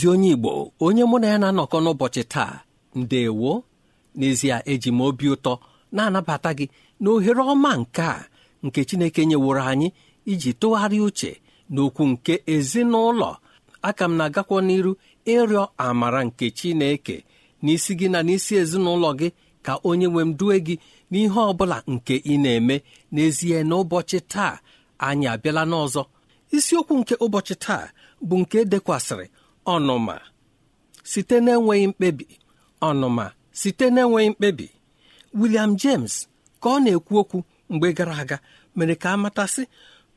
ezi onye igbo onye mụ na ya na-anọkọ n'ụbọchị taa ndewo n'ezie eji m obi ụtọ na-anabata gị na ohere ọma nke a nke chineke nyeworo anyị iji tụgharịa uche n'okwu nke ezinụlọ aka m na-agakwa n'iru ịrịọ amara nke chineke n'isi gị na n'isi ezinụlọ gị ka onye nwe m due gị n'ihe ọ bụla nke ị na-eme n'ezie n'ụbọchị taa anyị abịala n'ọzọ isiokwu nke ụbọchị taa bụ nke e dekwasịrị ọnụma site n'enweghị mkpebi ọnụma site n'enweghị mkpebi William James ka ọ na-ekwu okwu mgbe gara aga mere ka a matasị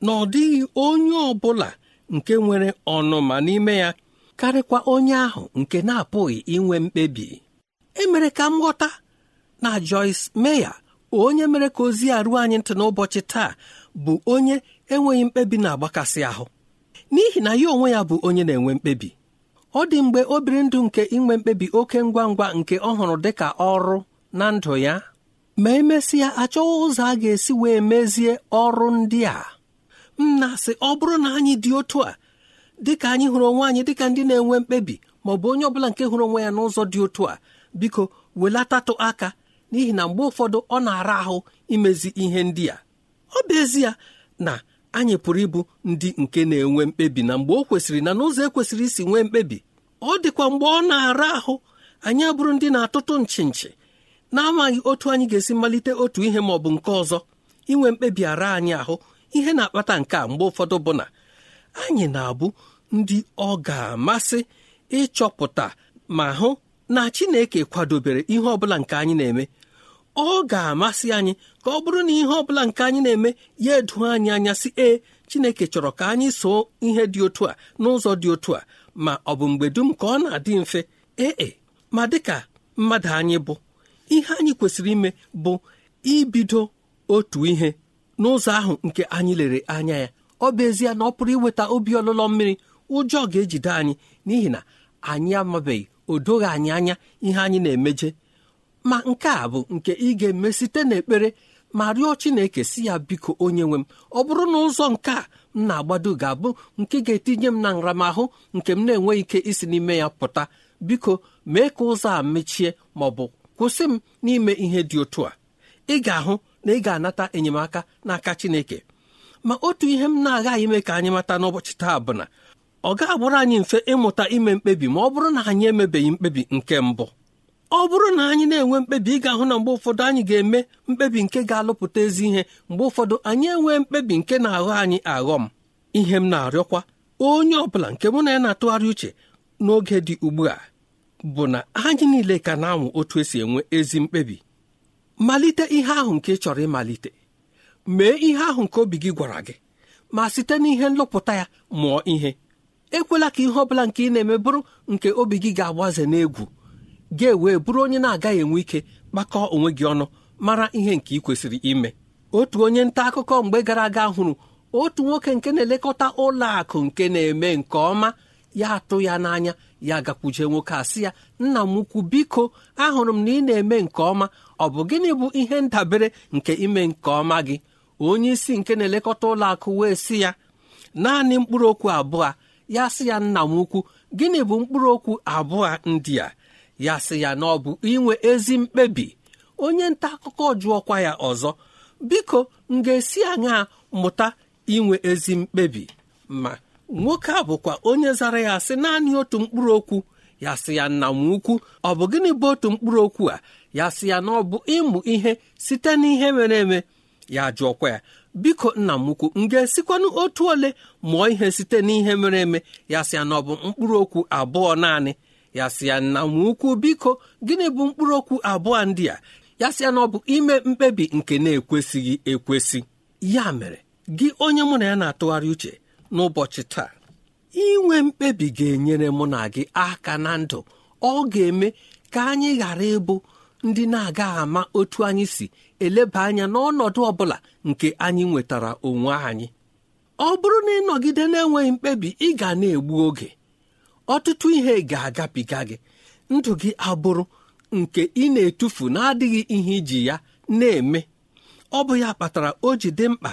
na ọ dịghị onye ọ bụla nke nwere ọnụma n'ime ya karịkwa onye ahụ nke na-apụghị inwe mkpebi emere ka m ghọta na Joyce Meya, onye mere ka ozi a ruo anyị ntị n'ụbọchị taa bụ onye enweghị mkpebi na-agbakasị ahụ n'ihi na ya onwe ya bụ onye na-enwe mkpebi ọ dị mgbe o biri ndụ nke inwe mkpebi oke ngwa ngwa nke ọ hụrụ dị ka ọrụ na ndụ ya ma emesịa achọghị ụzọ a ga-esi wee mezie ọrụ ndị a m na-asị ọ bụrụ na anyị dị otu a dịka anyị hụrụ onwe anyị dịka ndị na-enwe mkpebi ma ọ bụ onye ọbụla nke hụrụ onwe ya n'ụzọ dị otu a biko welatatụ aka n'ihi na mgbe ụfọdụ ọ na-ara ahụ imezi ihe ndị a ọ bụ ezie na anyị pụrụ ịbụ ndị nke na-enwe mkpebi na mgbe o kwesịrị na n'ụzọ ekwesịrị isi nwee mkpebi ọ dịkwa mgbe ọ na-ara ahụ anyị abụrụ ndị na-atụtụ nchi nchi na-amaghị otu anyị ga-esi malite otu ihe ma ọ bụ nke ọzọ inwe mkpebi ara anyị ahụ ihe na-akpata nke a mgbe ụfọdụ bụ na anyị na-abụ ndị ọ ga-amasị ịchọpụta ma hụ na Chineke kwadobere ihe ọbụla nke anyị na-eme ọ ga-amasị anyị ka ọ bụrụ na ihe ọbụla nke anyị na-eme ya edu anyị anya si ee Chineke chọrọ ka anyị soo ihe dị otu a n'ụzọ dị otu a ma ọ bụ mgbe dum ka ọ na-adị mfe ee e, ma dịka mmadụ anyị bụ ihe anyị kwesịrị ime bụ ibido otu ihe n'ụzọ ahụ nke anyị lere anya ya ọ bụ ezie na ọ pụrụ iweta obi ọlụlọ mmiri ụjọ ga-ejide anyị n'ihi na anyị amabeghị o anyị anya ihe anyị na-emeje ma nke a bụ nke ị ga-eme site n'ekpere ma rịọ chineke si ya biko onye nwe m ọ bụrụ na ụzọ nke a m na-agbado ga-abụ nke ga-etinye m na nramahụ nke m na-enweghị ike isi n'ime ya pụta biko mee ka ụzọ a mechie ma ọ bụ kwụsị m n'ime ihe dị otu a ị ga-ahụ na ị ga-anata enyemaka n'aka chineke ma otu ihe m na-agaghị ime ka anyị mata n'ụbọchị taa bụ na ọ ga-agbụrụ anyị mfe ịmụta ime mkpebi ma ọ bụrụ na anyị emebeghị mkpebi nke mbụ ọ bụrụ na anyị na-enwe mkpebi ị ga-ahụ na mgbe ụfọdụ anyị ga-eme mkpebi nke ga-alụpụta ezi ihe mgbe ụfọdụ anyị enwee mkpebi nke na-aghọ anyị aghọ m ihe m na-arịọkwa onye ọ bụla nke mụ na ya na-atụgharị uche n'oge dị ugbu a bụ na anyị niile ka na-anwụ otu esi enwe ezi mkpebi malite ihe ahụ nke ị chọrọ ịmalite mee ihe ahụ nke obi gị gwara gị ma site n'ihe nlụpụta ya mụọ ihe ekwela ka ihe ọ bụla nke ị na-eme bụrụ nke obi gị ga-agbaze n'egwu ga-ewe bụrụ onye na-agaghị enwe ike kpakọọ onwe gị ọnụ mara ihe nke ị kwesịrị ime otu onye nta akụkọ mgbe gara aga hụrụ otu nwoke nke na-elekọta ụlọ akụ nke na-eme nke ọma ya atụ ya n'anya ya gakwuje nwoke a ya nna m ukwu biko ahụrụ m na ị na-eme nke ọma ọ bụ gịnị bụ ihe ndabere nke ime nke ọma gị onye isi nke na-elekọta ụlọ akụ wee sị ya naanị mkpụrụ okwu abụọ ya sị ya nna m ukwu gịnị bụ mkpụrụ okwu abụọ ndị a ya sị ya na ọ bụ inwe ezi mkpebi onye nta akụkọ jụọkwa ya ọzọ biko m ga-esi aṅaa mụta inwe ezi mkpebi ma nwoke a bụkwa onye zara ya sị naanị otu mkpụrụ okwu ya sị ya nna m ukwu ọ bụ gịnị bụ otu mkpụrụ okwu a ya sị ya na ọ bụ ịmụ ihe site n'ihe mere eme ya jụọkwa ya biko nna m ukwu m ga-esikwanụ otu ole mụọ ihe site n'ihe mere eme ya sị ya na ọ bụ mkpụrụ okwu abụọ naanị ya sị ya nna ukwu biko gịnị bụ mkpụrụ okwu abụọ ndị a ya sị ya na ọ bụ ime mkpebi nke na-ekwesịghị ekwesị ya mere gị onye mụ na ya na-atụgharị uche n'ụbọchị taa inwe mkpebi ga-enyere mụ na gị aka na ndụ ọ ga-eme ka anyị ghara ịbụ ndị na aga ama otu anyị si eleba anya n'ọnọdụ ọ bụla nke anyị nwetara onwe anyị ọ bụrụ na ịnọgide na-enweghị mkpebi ị ga na-egbu oge ọtụtụ ihe ga-agabiga gị ndụ gị abụrụ nke ị na-etufu na-adịghị ihe iji ya na-eme ọ bụ ya kpatara o ji dị mkpa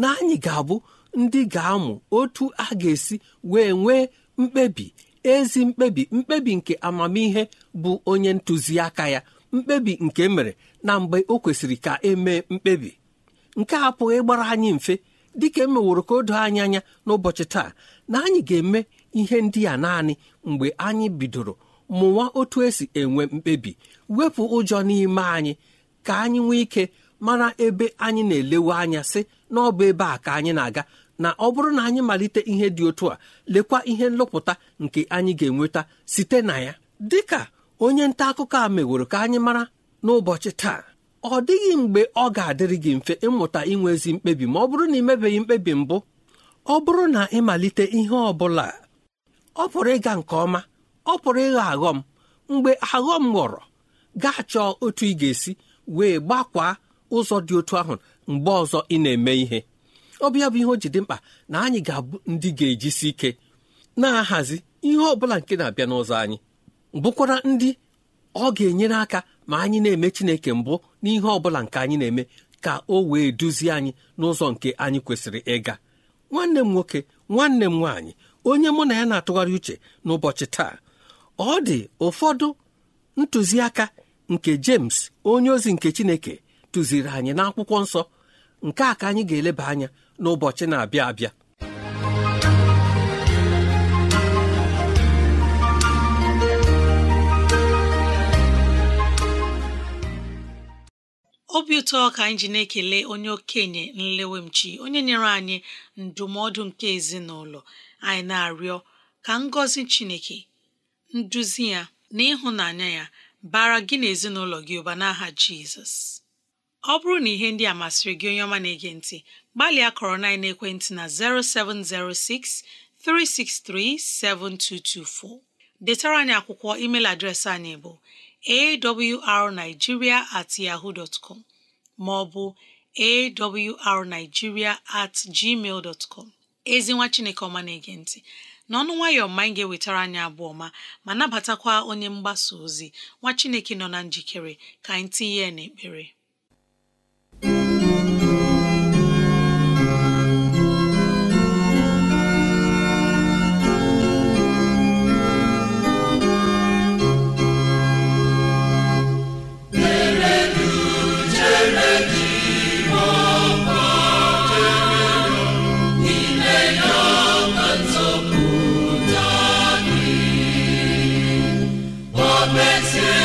na anyị ga-abụ ndị ga-amụ otu a ga-esi wee nwee mkpebi ezi mkpebi mkpebi nke amamihe bụ onye ntụziaka ya mkpebi nke e mere na mgbe o kwesịrị ka emee mkpebi nke a pụghị ịgbara anyị mfe dịka emeworo ka o doo anyị anya n'ụbọchị taa na anyị ga-eme ihe ndị a naanị mgbe anyị bidoro mụwa otu esi enwe mkpebi wepụ ụjọ n'ime anyị ka anyị nwee ike mara ebe anyị na-elewe anya sị na ọ bụ ebe a ka anyị na-aga na ọ bụrụ na anyị malite ihe dị otu a lekwa ihe nlụpụta nke anyị ga-enweta site na ya dị ka onye nta akụkọ a meworo ka anyị mara n'ụbọchị taa ọ dịghị mgbe ọ ga-adịrị gị mfe ịmụta inwe ezi mkpebi ma ọ bụrụ na ị mebeghị mkpebi mbụ ọ bụrụ na ịmalite ihe ọ bụla ọ pụrụ ịga nke ọma ọ pụrụ ịghọ aghọm mgbe aghọm ghọrọ gaa chọọ otu ị ga-esi wee gbakwaa ụzọ dị otu ahụ mgbe ọzọ ị na-eme ihe ọ bụ bụ ihe o ji dị mkpa na anyị ga-abụ ndị ga-ejisi ike na-ahazi ihe ọ bụla nke na-abịa n'ụzọ anyị bụkwara ndị ọ ga-enyere aka ma anyị na-eme Chineke mbụ n'ihe ọ bụla nke anyị na-eme ka o wee duzie anyị n'ụzọ nke anyị kwesịrị ịga nwanne m nwoke nwanne m nwaanyị onye mụ na ya na-atụgharị uche n'ụbọchị taa ọ dị ụfọdụ ntụziaka nke James onye ozi nke Chineke tụziri anyị n'akwụkwọ nsọ nke a ka anyị ga-eleba anya n'ụbọchị na-abịa abịa obi ụtọ ka anyị ji na-ekele onye okenye nlewemchi onye nyere anyị ndụmọdụ nke ezinụlọ anyị na-arịọ ka ngọzi Chineke nduzi ya na ịhụnanya ya bara gị na ezinụlọ gị ụba n'aha Jizọs ọ bụrụ na ihe ndị a masịrị gị onye ọma na-ege ntị gbalịa kọrọ na ekwentị na 0706 7224 detara anyị akwụkwọ email adreesị anyị bụ awrnigeria at yahoo dot com ma ọ bụ at gmail dot ezi nwa chineke ọma na-ege ntị n'ọnụ nwayọọ ma anyị ga-ewetara anyị abụọ ma ma nabatakwa onye mgbasa ozi nwa chineke nọ na njikere ka anyị tinye n'ekpere see.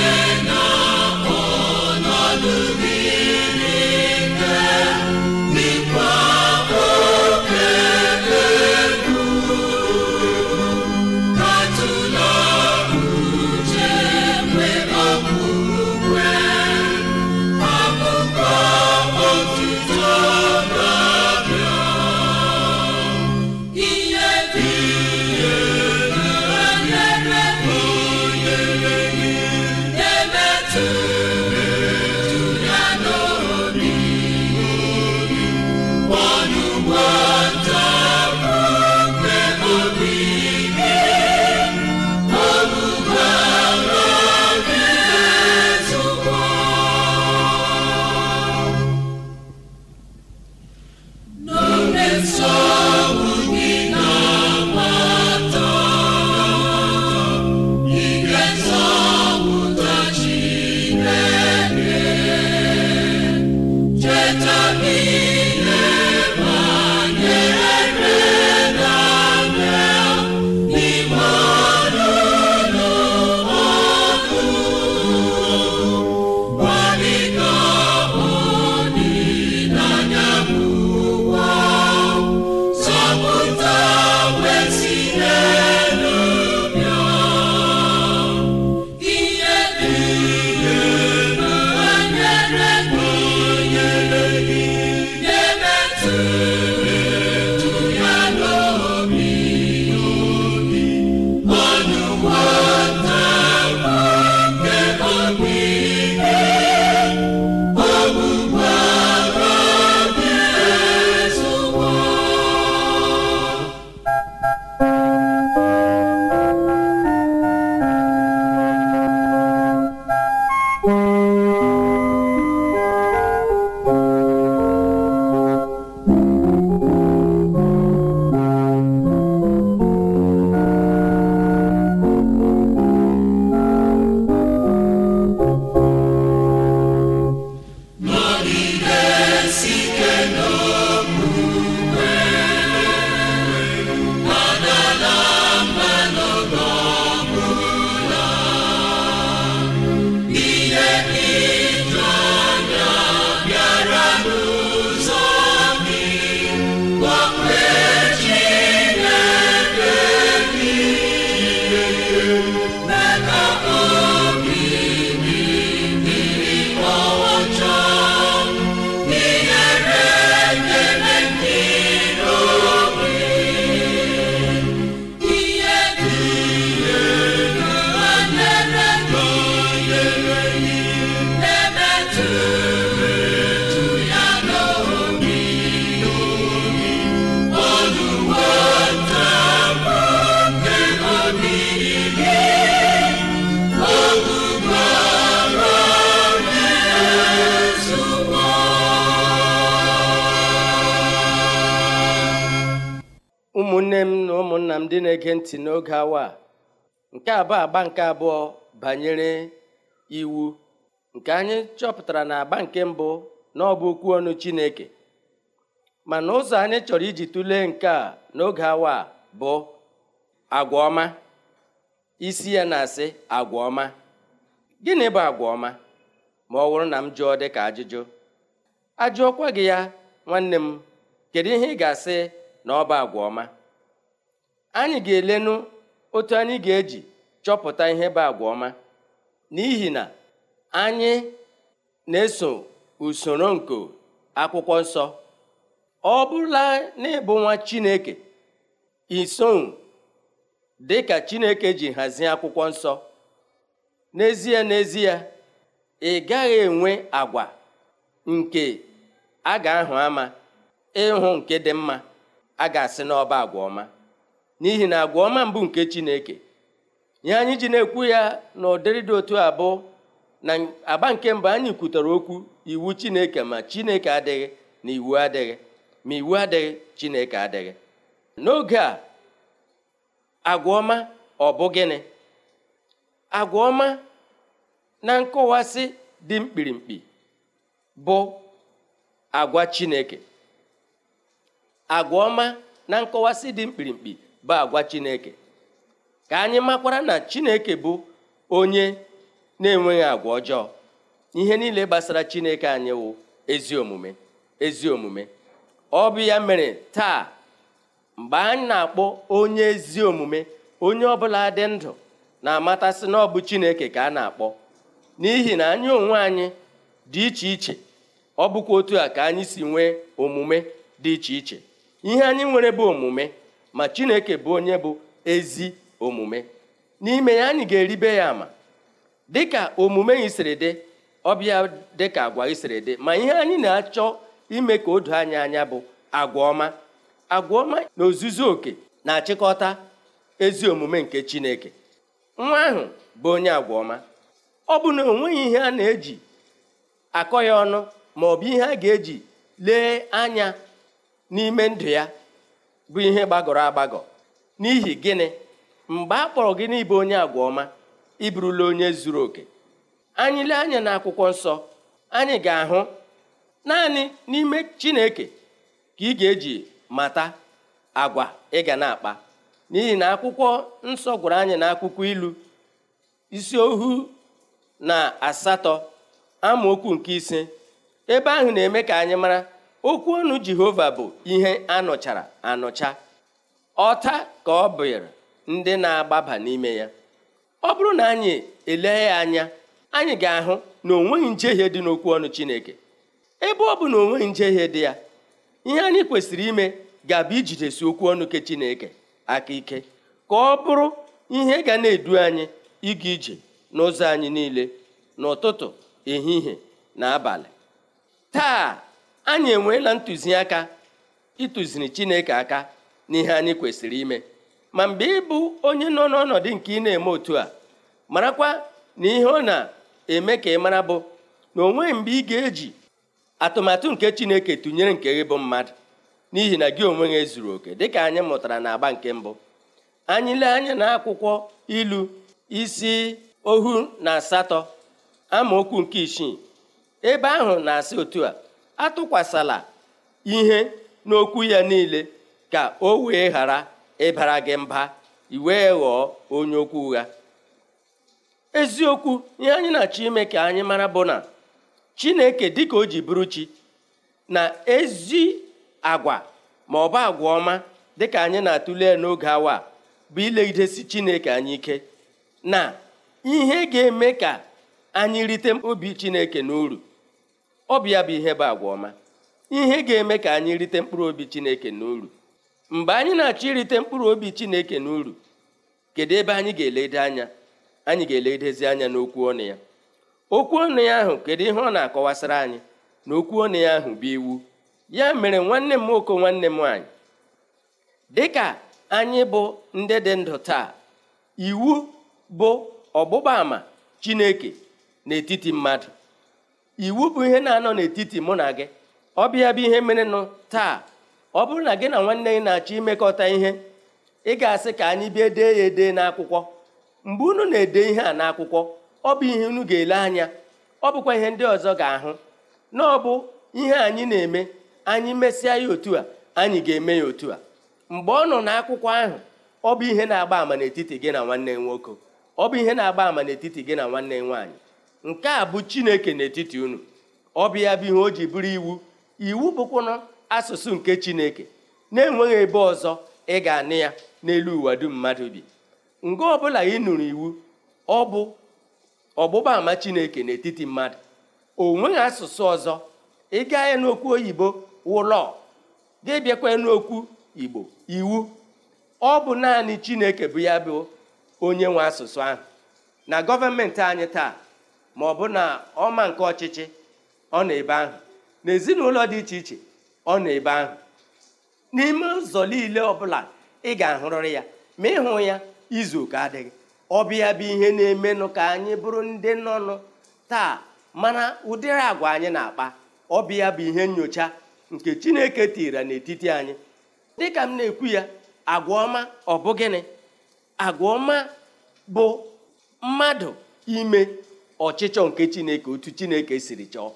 Now. nne m na ụmụnna m ndị na-ege ntị n'oge awa nke abụọ agba nke abụọ banyere iwu nke anyị chọpụtara na agba nke mbụ na ọ bụ okwu ọnụ Chineke mana ụzọ anyị chọrọ iji tụlee nke a n'oge awa bụ agwa ọma isi ya na-asị agwa ọma gịnị bụ agwa ọma ma ọ wụrụ na m jụọ dị ka ajụjụ ajụọkwa gị ya nwanne m kedu ihe ị ga-asị na ọ bụ agwa ọma anyị ga-elenụ otu anyị ga-eji chọpụta ihe bụ agwa ọma n'ihi na anyị na-eso usoro nke akwụkwọ nsọ ọ bụrụla na ịbụ nwa Chineke iso dị ka Chineke ji hazie akwụkwọ nsọ n'ezie n'ezie ị gaghị enwe agwa nke a ga-ahụ ama ịhụ nke dị mma a ga-asị n'ọba agwa ọma n'ihi na agwa mbụ nke Chineke ihe anyị ji na-ekwu ya na ụdịrị dị otu abụọ na agba nke mbụ anyị kwutara okwu iwu Chineke ma Chineke adịghị na iwu adịghị ma iwu adịghị Chineke adịghị n'oge a agwa ọma ọ gịnị na nkọwasị dị mkpirimkpi bụ agwa Chineke agwa na nkọwasị dị mkpirimkpi bụ agwa chineke ka anyị makwara na chineke bụ onye na-enweghị agwa ọjọọ ihe niile gbasara chineke anyị wụ ezi omume ezi omume ọ bụ ya mere taa mgbe anyị na-akpọ onye ezi omume onye ọbụla dị ndụ na-amatasị na ọ bụ chineke ka a na-akpọ n'ihi na anyị onwe anyị dị iche iche ọ bụkwa otu a ka anyị si nwee omume dị iche iche ihe anyị nwere bụ omume ma chineke bụ onye bụ ezi omume n'ime ya anyị ga-eribe ya ama dịka omume isiri dị ọbịa dịka agwa isiri dị ma ihe anyị na-achọ ime ka o do anyị anya bụ agwa ọma agwa ọma na ozuzu oke na-achịkọta ezi omume nke chineke nwa ahụ bụ onye agwa ọma ọ bụ na onweghị ihe a na-eji akọ ya ọnụ ma ọ bụ ihe a ga-eji lee anya n'ime ndụ ya bụ ihe gbagọrọ agbagọ n'ihi gịnị mgbe a kpọrọ gị n'ịbụ onye agwa ọma ịbụrụla onye zuru oke anyị lee anya na akwụkwọ nsọ anyị ga-ahụ naanị n'ime chineke ka ị ga-eji mata agwa ị ga na-akpa n'ihi na akwụkwọ nsọ gwara anyị na akwụkwọ ilu isi ohu na asatọ amaokwu nke ise ebe ahụ na-eme ka anyị mara okwu ọnụ jehova bụ ihe anọchara anọcha ọta ka ọ bụrụ ndị na-agbaba n'ime ya ọ bụrụ na anyị elee ya anya anyị ga-ahụ na onweghị njehie dị n'okwu ọnụ chineke ebe ọ bụ na onweghị njehie dị ya ihe anyị kwesịrị ime ga-abụ ijidesi okwu ọnụ ke chineke aka ike ka ọ bụrụ ihe ga na-edu anyị ịga ije n'ụzọ anyị niile n'ụtụtụ ehihie na abalị taa anyị enweela ntụziaka ịtụziri chineke aka n'ihe anyị kwesịrị ime ma mgbe ịbụ onye nọ n'ọnọdụ nke ị na-eme otu a marakwa na ihe ọ na-eme ka ị mara bụ na o nweghị mgbe ị ga-eji atụmatụ nke chineke tụnyere nke gị bụ mmadụ n'ihi na gị onwe gị zuru oke dịka anyị mụtara na agba nke mbụ anyị lee anya na akwụkwọ ilu isi ohu na asatọ amaokwu nke isii ebe ahụ na-asị otu a atụkwasịla ihe n'okwu ya niile ka o wee ghara ịbara gị mba iwee ghọọ onye okwu ụgha eziokwu ihe anyị na-achọ ime ka anyị mara bụ na chineke dịka o ji bụrụ chi na ezi agwa ma ọ bụ agwa ọma dịka anyị na-atụle n'oge awa bụ ile ilegidesi chineke anyị ike na ihe ga-eme ka anyị rite obi chineke n'uru ọbịa bụ ihe bụ agwa ọma ihe ga-eme ka anyị rite mkpụrụ obi chineke n'uru mgbe anyị na-achọ irite mkpụrụ obi chineke n'uru kedu ebe anyị ga-elede anya anyị ga-eledezi anya n'okwu ọnụ ya okwu ọnụ ya ahụ kedu ihe ọ na-akọwasịra anyị na okwu ọnụ ya ahụ bụ iwu ya mere nwanne m nwoke nwanne m nwanyị dịka anyị bụ ndị dị ndụ taa iwu bụ ọgbụgba ama chineke n'etiti mmadụ iwu bụ ihe na-anọ n'etiti mụ na gị ọbịa bụ ihe mere nụ taa ọ bụrụ na gị na nwanne gị na-achọ imekọta ihe ị ga-asị ka anyị bịa dee ya ede n'akwụkwọ mgbe unu na-ede ihe a n'akwụkwọ ọ bụ ihe unu ga-ele anya ọ bụkwa ihe ndị ọzọ ga-ahụ na ọbụ ihe anyị na-eme anyị mesịa ya otu a anyị ga-eme ya otu a mgbe ọ nọ n'akwụkwọ ahụ ọ bụ ihe na-agba ama n'etiti gị na nwanne nwoke ọ bụ ihe na-agba ama n'etiti gị na nwanne nwaanyị nke a bụ chineke n'etiti unu ọ bịa ya bụ ihe o ji bụrụ iwu iwu bụkwụna asụsụ nke chineke na-enweghị ebe ọzọ ị ga anị ya n'elu ụwa dum mmadụ bi mgbe ọbụla ị nụrụ iwu ọ bụ ọgbụgba ama chineke n'etiti mmadụ o nweghị asụsụ ọzọ ị gaa n'okwu oyibo wụlọ gị bịakwa n'okwu igbo iwu ọ bụ naanị chineke bụ ya bụ onye nwe asụsụ ahụ na gọọmenti anyị taa ma ọ bụ na ọma nke ọchịchị ọ na-ebe ahụ na ezinụlọ dị iche iche ọ nọ ebe ahụ n'ime ụzọ niile ọ bụla ị ga-ahụrịrị ya ma ịhụ ya izu oke adịghị ọbịa bụ ihe na-emenụ ka anyị bụrụ ndị nọnụ taa mana ụdịrị agwa anyị na-akpa ọbịa bụ ihe nyocha nke chineke tiri n'etiti anyị dịka m na-ekwu ya agwa ọma ọ bụ gịnị agwa ọma bụ mmadụ ime ọchịchọ nke chineke otu chineke siri chọọ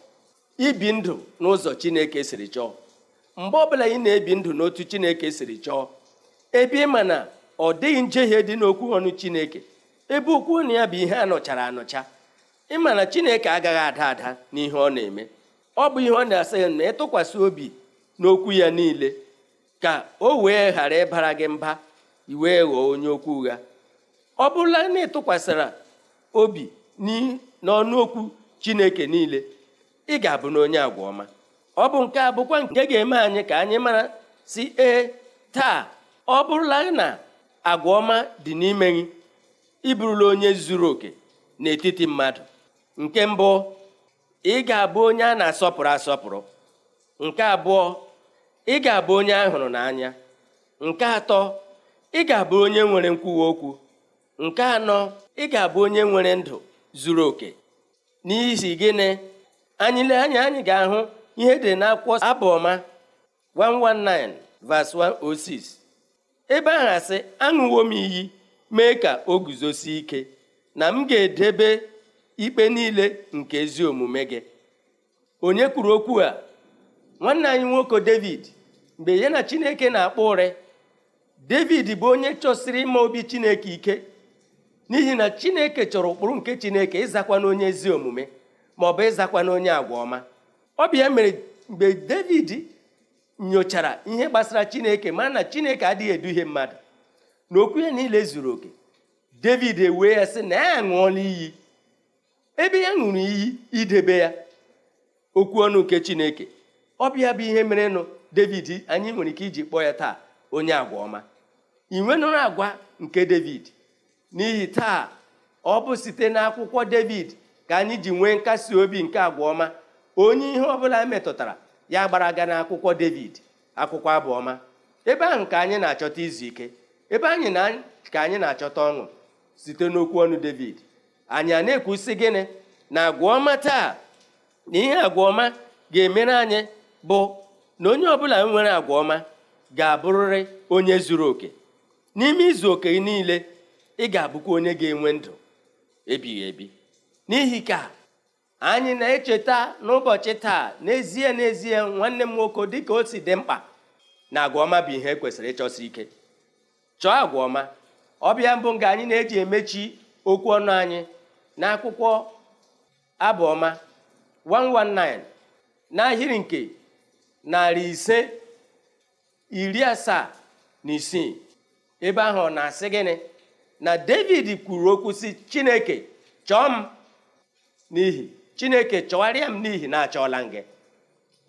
ibi ndụ n'ụzọ chineke siri chọọ mgbe ọbụla ị na-ebi ndụ n'otu chineke siri chọọ ebe ị ma na ọ dịghị njehie dị n'okwu ọnụ chineke ebe ukwu na ya bụ ihe anọchara anọcha ị ma na chineke agaghị ada ada n'ihe ọ na-eme ọ bụ ihe ọ na-asị na ịtụkwasị obi n'okwu ya niile ka o wee ghara ịbara gị mba wee ghọọ onye okwu ụgha ọ bụrụla na ịtụkwasịra obi n'ọnụ okwu chineke niile ị ga-abụ na onye agwa ọma ọ bụ nke a bụkwa nke ga-eme anyị ka anyị mara si ee taa ọ bụrụla na agwa ọma dị n'ime gị ịbụrụla onye zuru oke n'etiti mmadụ nke mbụ ị ga-abụ onye a na-asọpụrụ asọpụrụ nke abụọ ị ga-abụ onye a hụrụ n'anya nke atọ ị ga-abụ onye nwere nkwuwa okwu nke anọ ị ga-abụ onye nwere ndụ zuru oke n'ihi gịnị anyị anyị ga-ahụ ihe dị n'akwụkwọ abụọma 119 verse 106 ebe ahụ asị aṅụwo m iyi mee ka o guzosie ike na m ga-edebe ikpe niile nke ezi omume gị onye kwuru okwu a nwanne anyị nwoke david mgbe ya na chineke na-akpọ ụrị david bụ onye chọsiri ịma obi chineke ike n'ihi na chineke chọrọ ụkpụrụ nke chineke ịzakwa onye ezi omume ma ọ bụ ịzakwa onye agwa ọma ọbịa mere mgbe david nyochara ihe gbasara chineke ma na chineke adịghị eduhie mmadụ na okwu ya niile zuru oke david ewee ya sị na ya ṅụọla iyi ebe ya ṅụrụ iyi idebe ya okwu ọnụ nke chineke ọbịa bịa bụ ihe mere nụ david anyị nwere ike iji kpọọ ya taa onye agwa ọma ị nwenụrụ agwa nke david n'ihi taa ọ bụ site n'akwụkwọ david ka anyị ji nwee nkasi obi nke agwa ọma onye ihe ọbụla metụtara ya gbara aga n'akwụkwọ david akwụkwọ abụ ọma ebe ahụ ka anyị na-achọta izu ike ebe anyị na ka anyị na-achọta ọṅụ site n'okwu ọnụ david anyị a na-ekwusi gịnị na agwa taa na ihe agwa ga-emere anyị bụ na onye ọbụla nwere agwa ọma ga-abụrịrị onye zuru oke n'ime izu oke niile ị ga-abụkwa onye ga-enwe ndụ ebighị ebi n'ihi ka anyị na-echeta n'ụbọchị taa n'ezie n'ezie nwanne m nwoke dịka o si dị mkpa na agwa bụ ihe e kwesịrị ịchọsi ike chọọ agwa ọbịa mbụ nga anyị na-eji emechi okwu ọnụ anyị na akwụkwọ abụọma ọma 119 n'ahịrị nke narị ise iri asaa na isii ebe ahụ na-asị gịnị na david kwuru okwu si chineke chọọ m n'ihi chineke chọwarịa m n'ihi na achọọla m gị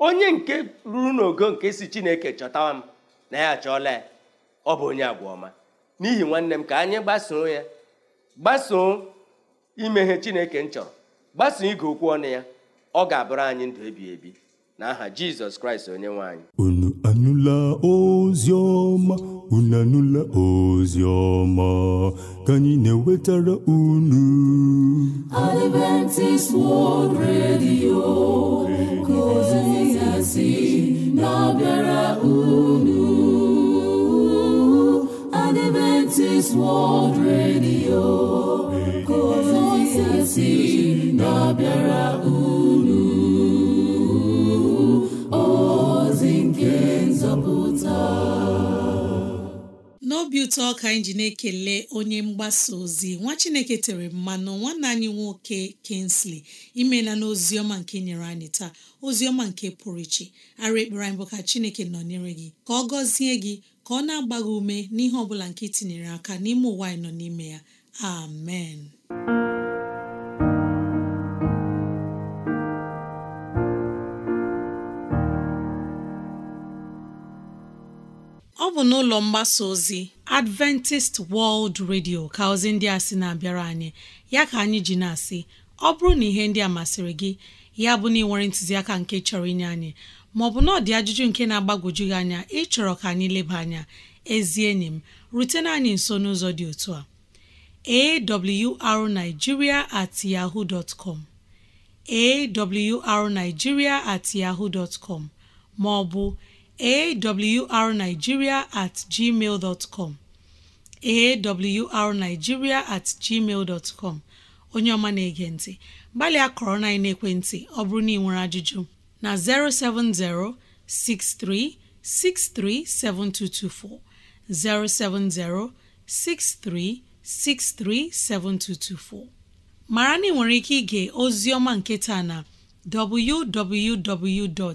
onye nke ruru n'ogo nke si chineke chọtawa m na ya achọọla ya ọ bụ onye agwa ọma n'ihi nwanne m ka anyị gbasoo ya gbasoo imeghe chineke m chọrọ gbasoo ige okwu ọnụ ya ọ ga-abụrụ anyị ndụ ebi ebi aha jizọs kraịst onye nwe anyị unu anụla ozi ọma ka anyị na-ewetara unu Adventist World Radio ka ozi ya na-abịara unu Adventist World Radio ka ozi ya si na-abịara unu ozi nke nzọpụta obi ụtọ ka anyị ji na-ekele onye mgbasa ozi nwa chineke tere mmanụ nwanne anyị nwoke Kingsley imela na ọma nke nyere anyị taa oziọma nke pụrụ iche ara ekpere anyị bụ ka chineke nọ nọnyere gị ka ọ gọzie gị ka ọ na-agba ume n'ihe ọ nke itinyere aka n'ime ụwa anyị nọ n'ime ya amen bụ n'ụlọ mgbasa ozi Adventist World Radio ka ozi ndị a sị na-abịara anyị ya ka anyị ji na-asị ọ bụrụ na ihe ndị a masịrị gị ya bụ na ị ntụziaka nke chọrọ inye anyị maọbụ na ọ dị ajụjụ nke na-agbagwoju gị anya ịchọrọ ka anyị leba anya ezi enyi m rutena anyị nso n'ụzọ dị otu a arigiria at yahoo dot com awrnigeria at yahoo dot com maọbụ arigiria atgmal com arigiria atgmal com onye ọma na-ege ntị gbalịa kọrọ na ekwentị ọ bụrụ na ị nwere ajụjụ na 070 7224. 070-6363-7224 mara na ike ige ozi ọma nke taa na www.